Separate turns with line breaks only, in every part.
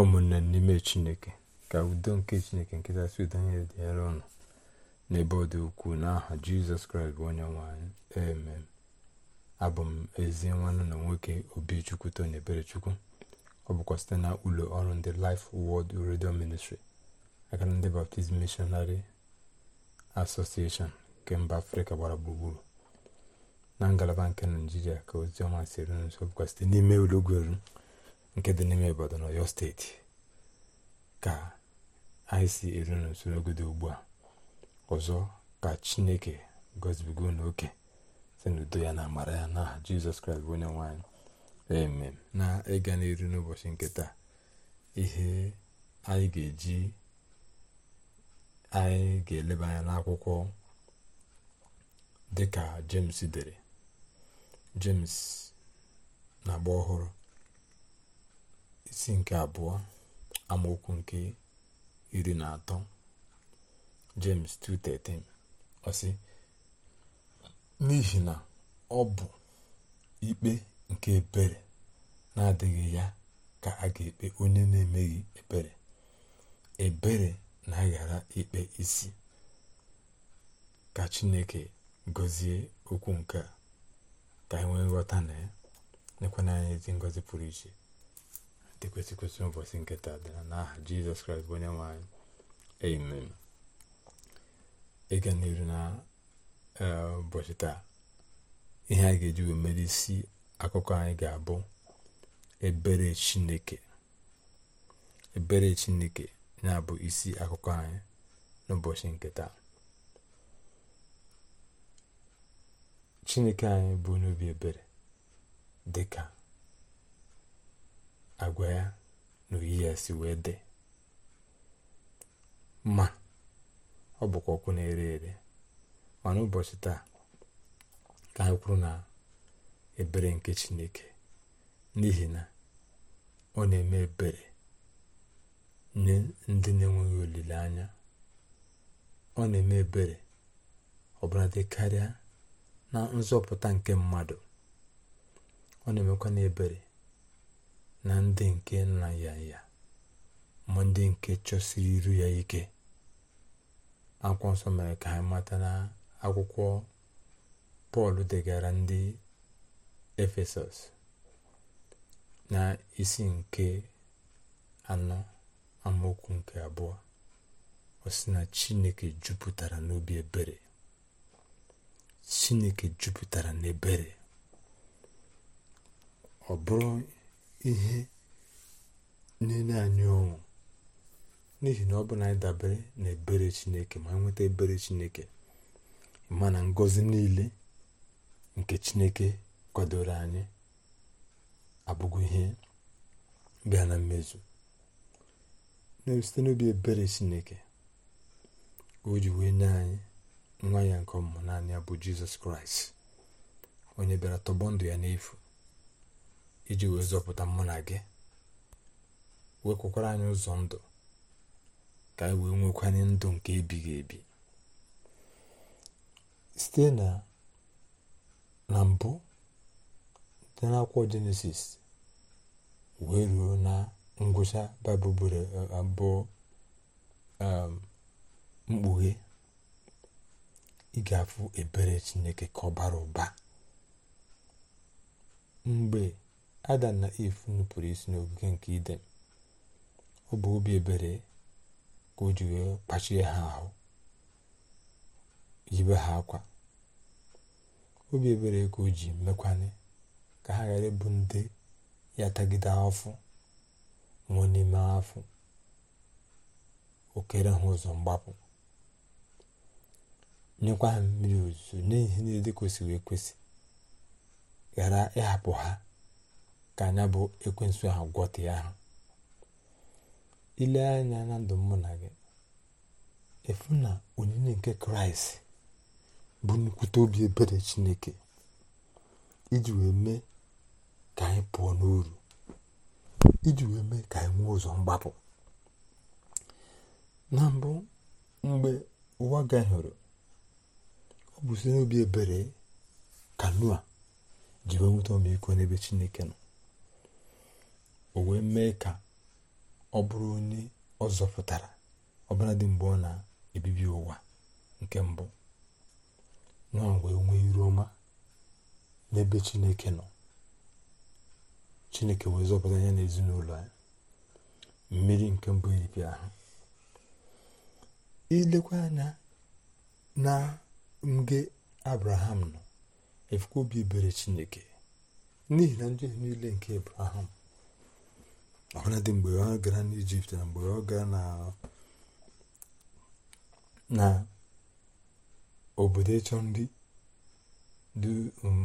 ụmụnne n'ime chineke ka udo nke chineke nkịtasị udo anya dị nyere ọnụ n'ebe ọ dị ukwuu n'aha jizọs kraịst bụ onye nwanyị emem abụ m ezi nwanne na nwoke obichukwu tony eberechukwu ọ bụkwa site na ụlọ ọrụ ndị life world redio ministri aka ndị baptizim missionary association nke mba afrịka gbara gburugburu na ngalaba nke naijiria ka oziọma si eru nso bụkwa site n'ime ụlọgweru nke dị n'ime obodo na Oyo steeti ka anyị si eru dị ugbu a ọzọ ka chineke gozibigo n'oke si n'udo ya na amara ya na aha jizọs kraịst bụ onye nwanyị eme na ịga n'iru n'ụbọchị nke taa ihe anyị ga-eji anyị ga-eleba anya n'akwụkwọ dịka jems dere jemes na agba ọhụrụ isi nke abụọ amaokwu nke iri na atọ James 2:13 ọ n'ihi na ọ bụ ikpe nke ebere na-adịghị ya ka a ga-ekpe onye na-emeghị ebere ebere na-aghara ikpe isi ka chineke gọzie okwu nke a ka anyị e nwee nghọta na ya nekwana anyị ezi ngozi pụrụ iche ekwesị ekwesị ụbọchị nke taa n'aha jizọs kraịst bụ onye nwanyị amen ịga e n'iru na ụbọchị eh, taa ihe anyị ga-eji wee mere isi akụkọ anyị ga-abụ ebere chineke ebere chineke na-abụ isi akụkọ anyị n'ụbọchị nkịta chineke anyị bụ n'obi ebere dịka agwa ya na oyi ya si wee dị ma ọ bụkwa ọkụ na-ere ere mana ụbọchị taa ka anyị na ebere nke chineke n'ihi na ọ na-eme ebere nye ndị na-enweghị olileanya ọ na-eme ebere ọbụla dị karịa na nzọpụta nke mmadụ ọ na-emekwa na ebere na ndị nke nna ya ya ma ndị nke chọsiri iru ya ike akwụkwọ nsọ mere ka anyị mata na akwụkwọ pọl degara ndị efesọs na isi nke anọ amaokwu nke abụọ osi na chineke jupụtara n'obi ebere chineke jupụtara n'ebere ọ bụrụ ihe na anyị ọṅụ n'ihi na ọ bụ na anyị dabere na ebere chineke ma nweta ebere chineke ma na ngọzi niile nke chineke kwadoro anyị abụghị ihe bịa na mmezu site n'obi ebere chineke o ji wee nye anyị nwa ya nke ọmụmụ naanị ya bụ jizọs kraịst onye bịara tọgbọ ndụ ya n'efu iji wee zọpụta mụ na gị kwekwara anyị ụzọ ndụ ka anyị wee nwekwanye ndụ nke ebighị ebi site na na mbụ dị n'akwụkwọ jenesis wee ruo na ngwụcha baịbụl abụọ um, mkpughe ị afụ ebere chineke ka ọ bara ụba mgbe adam na if nupụrụ isi n'ogige nke iden ọ bụ obi ebere ka o ji wee kpachie ha ahụ yibe ha akwa obi ebere ka o ji mekwanye ka ha ghara ịbụ ndị ya tagide afọ nwụọ n'ime afọ okere ha ụzọ mgbapụ nyekwa ha mmiri ozuzo n'ihi niile dị kwesịrị ekwesị ghara ịhapụ ha ka anya bụ ekwensu ahụ ya ha ile anya na ndụ mụ na gị efu na onyinye nke kraịst bụ nnukwute obi ebere chineke iji wee mee ka anyị pụọ n'uru iji wee mee ka anyị nwee ụzọ mgbapụ na mbụ mgbe ụwa gahụrụ ọ bụ site n'obi ebere kanua a ji wee nweta ọmịiko n'ebe chineke nọ o wee mee ka ọ bụrụ onye ọ zọpụtara ọbụladị mgbe ọ na-ebibi ụwa nke mbụ nwa wee nwee iru ọma n'ebe chineke nọ chineke wee zọpụta ya n'ezinụlọ ezinụlọ ya mmiri nke mbụ iripịa e ahụ ilekwa anya na mge abraham nọ efukwa obi ebere chineke n'ihi na njehie niile nke abraham ọbụladị mgbe ọ gara n'ijipt na mgbe ọ gara na obodo ịchọ ndị dị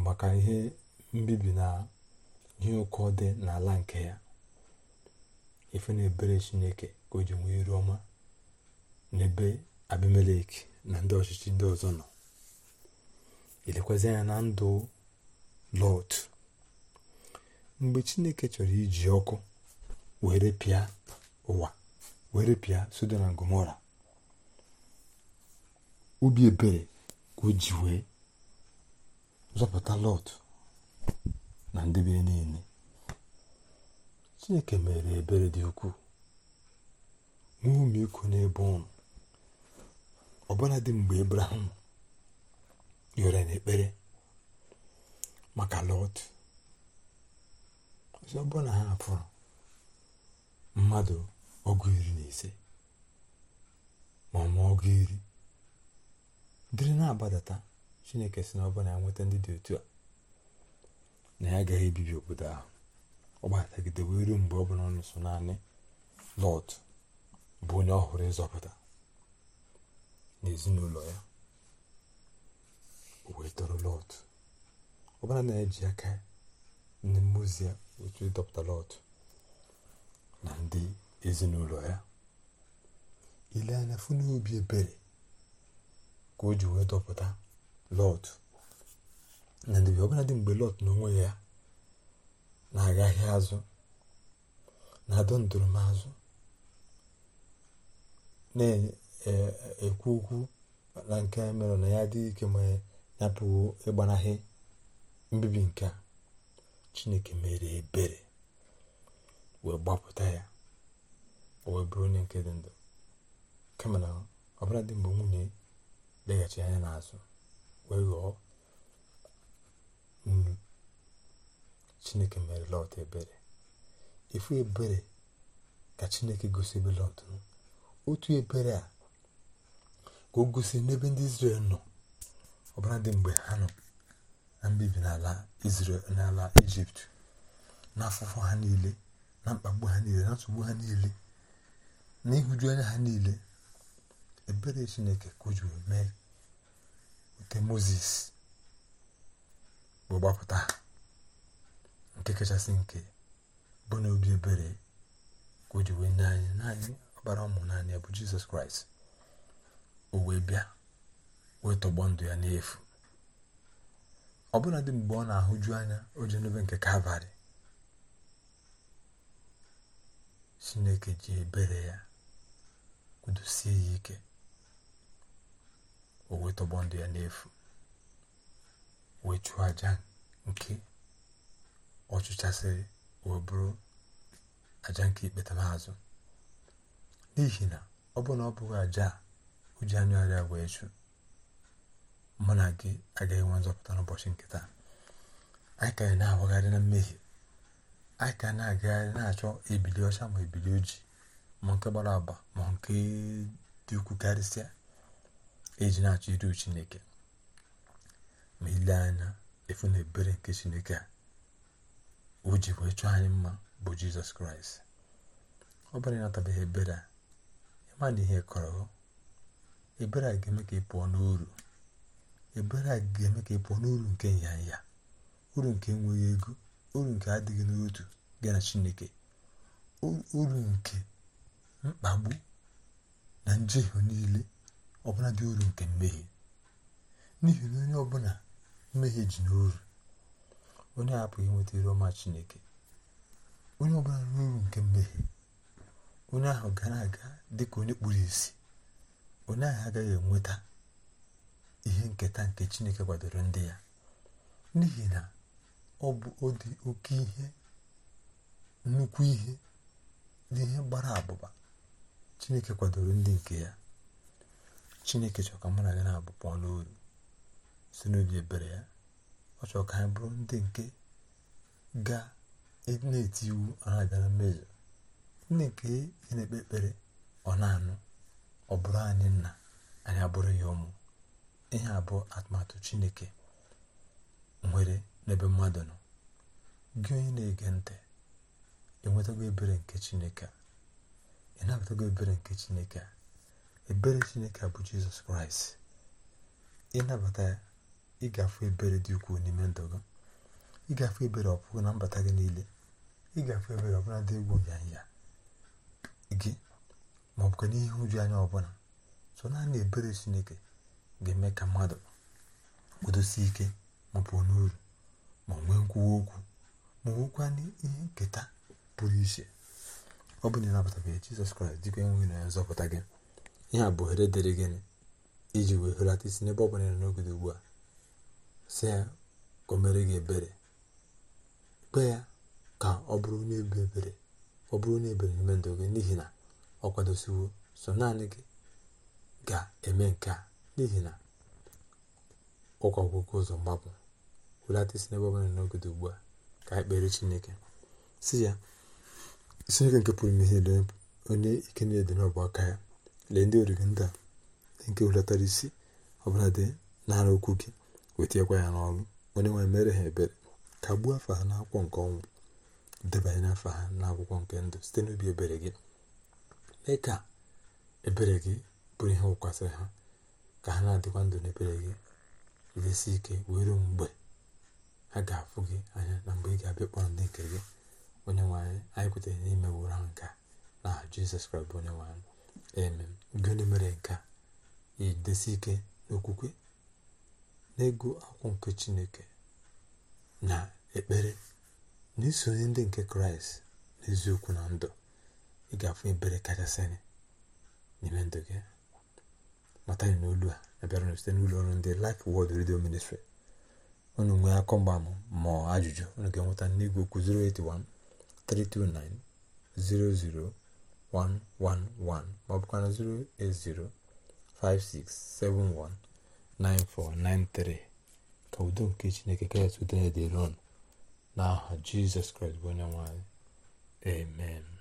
maka ihe mbibi na ihe ụkọ dị n'ala nke ya ife na ebere chineke ka o ji nwee iru ọma n'ebe abimelek na ndị ọchịchị ndị ọzọ nọ elekwazị anya na ndụ lọt mgbe chineke chọrọ iji ọkụ were pịa ụwa were pịa Sodom na Gomora obi ebere ka o ji wee zọpụta Lọt na ndebe niile chineke mere ebere dị ukwuu nwee ụmụiko n'ebe ụnụ ọbụla dị mgbe Abraham yọrọ n'ekpere maka Lọt ọzọ ọbụla ha pụrụ. mmadụ ọgụ iri na ise ma ọma ọgụ iri dịrị na-agbadata chineke si na ọ bụla ya nweta ndị dị otu a na ya agaghị ebibi obodo ahụ ọ gbatagidebe iru mgbe ọ bụla ọnụ so naanị lọt bụ onye ọhụrụ ịzọpụta na ezinụlọ ya wee tọrọ lọt ọbụla na-eji aka ndị mmụọ ozi ya otu ịdọpụta lọt Eh? na ndị ezinụlọ ya ile anya fụ n'obi ebere ka o ji wee dọpụta lọt na ndị ọbụla dị mgbe lọt na onwe ya na-agaghị azụ na-adọ ndụrụmazụ eh, na-ekwu okwu na nke mere na ya adịghị ike ma ya pụwo ịgbanahị mbibi nke a chineke mere ebere wee gbapụta ya o wee bụrụ onye nke dị ndụ kama na ọbụla dị mgbe nwunye leghachi anya n'azụ wee ghọọ nnu chineke mere lọt ebere ifu ebere ka chineke gosi ebe lọt otu ebere a ka o gosi n'ebe ndị Izrel nọ ọbụla dị mgbe ha nọ na mbibi n'ala Izrel n'ala Ijipt n'afụfụ ha niile na mkpagbu ha niile na nsogbu ha niile na ịhụju anya ha niile ebere chineke kụjuru mee nke moses bụ gbapụta nke kachasị nke bụ obi ebere ka o nye anyị naanị ọbara ụmụ naanị bụ jizọs kraịst o wee bịa wee tọgbọ ndụ ya n'efu ọ bụla dị mgbe ọ na-ahụju anya o ji n'obe nke kalvarị chineke ji ebere ya kwudosie ya ike o wee tọgbọ ndụ ya n'efu wee chụọ aja nke ọchịchasịrị chụchasịrị bụrụ aja nke ikpetamazụ n'ihi na ọ bụrụ na ọ bụghị aja o ji arịa wee chụ mụ na gị agaghị nwe nzọpụta n'ụbọchị nkịta anyị ka anyị na-awagharị na mmehie anyị ka na-agagharị na-achọ ebili ọcha ma ebili ojii ma nke gbara agba ma nke dị ukwu karịsịa eji na-achọ iru chineke ma ile anya efu na ebere nke chineke a o ji wee chọọ anyị mma bụ jizọs kraịst ọ bụrụ ịnatabeghị ebere a ịma na ihe kọrọ ebere a ga-eme ka ị pụọ n'uru ebere a ga-eme ka ị pụọ n'uru nke nyanya uru nke enweghị ego uru nke adịghị n'otu gị na chineke uru nke mkpagbu na njehie niile ọbụla dị uru nke mmehie n'ihi na onye ọbụla mmehie ji n'uru onye apụghị inweta iru ọma chineke onye ọbụla n'uru nke mmehie onye ahụ gara aga dị ka onye kpuru isi onye ahụ agaghị enweta ihe nketa nke chineke kwadoro ndị ya n'ihi na ọ bụ ọdị oke ihe nnukwu ihe n'ihe gbara abụba chineke kwadoro ndị nke ya chineke chọrọ ka mụ na gị na ọnụ si n'obi ebere ya ọ chọọ ka anyị bụrụ ndị nke ga e na-eti iwu ọha abịara mmejọ ndị nke ị na-ekpe ekpere ọ anụ ọ bụrụ anyị nna anyị abụrụ ya ụmụ ihe abụọ atụmatụ chineke nwere n'ebe mmadụ nọ gị onye na-ege ntị enwetago ebere nke chineke ị nabatago ebere nke chineke ebere chineke bụ jizọs kraịst ịnabata ya ịgafe ebere dị ukwuu n'ime ndụ gị ịgafe ebere ọpụgụ na mbata gị niile ịgafe ebere ọbụla dị egwu nyanya gị ma ọ bụ n'ihe uju anya ọbụla so naanị ebere chineke ga-eme ka mmadụ kwudosie ike ma pụọ n'uru ma nwe nkwuwa okwu ma nwekwa ihe nketa pụrụ iche ọ bụ na ịnapụtabeghị jizọs kraịst dịka enweghị na ya nzọpụta gị ihe a bụ ohere dịrị gịnị iji wee hụlata isi n'ebe ọ bụla nọ ugbu a si ya ka o mere gị ebere kpe ya ka ọ bụrụ onye ebere ọ bụrụ na ebere n'ime ndụ gị n'ihi na ọ kwadosiwo so naanị gị ga-eme nke a n'ihi na ụkọ ọgwụgwụ ụzọ mgbapụ welata isi n'ebe ọbụla n'oge dị ugbu a ka anyị kpere chineke si ya nke pụrụ ihe niile onye ike niile dị n'ọbụ aka ya lee ndị oriri ndị a nke hulatara isi ọbụla dị n'ara okwu gị wetinyekwa ya n'ọrụ onye nwe mere ha ebere ka gbuo afa ha n'akwụkwọ nke ọnwụ debanye n'afọ ha n'akwụkwọ nke ndụ site n'obi ebere gị mee ka ebere gị bụrụ ihe wụkwasịrị ha ka ha na-adịkwa ndụ n'ebere gị resi ike were mgbe ha ga-afụ gị anya na mgbe ị ga-abịa kpọrọ ndị nke gị onye nwanyị anyị kwetere n'ime wụrụ ha nke na jizọs kraịst bụ onye nwanyị eme gịnị mere nke a idesi ike n'okwukwe naego akwụkwọ nke chineke na ekpere na isonye ndị nke kraịst n'eziokwu na ndụ ị ga-afụ ebere kachasị n'ime ndụ gị mata na olu a abịara site n'ụlọ ọrụ ndị lif wọld redio Ministry ọnụ nwere akọgbam ma ọ ha jụjụ ọnụ nke nweta n'igwe okwu 081-329-00111 m'obukwana 080-56-71-9493 ka ụdọ nke chineke ka ịtụ ụdọ ya dị roon n'aha jisus krest bụ onye nwanyị.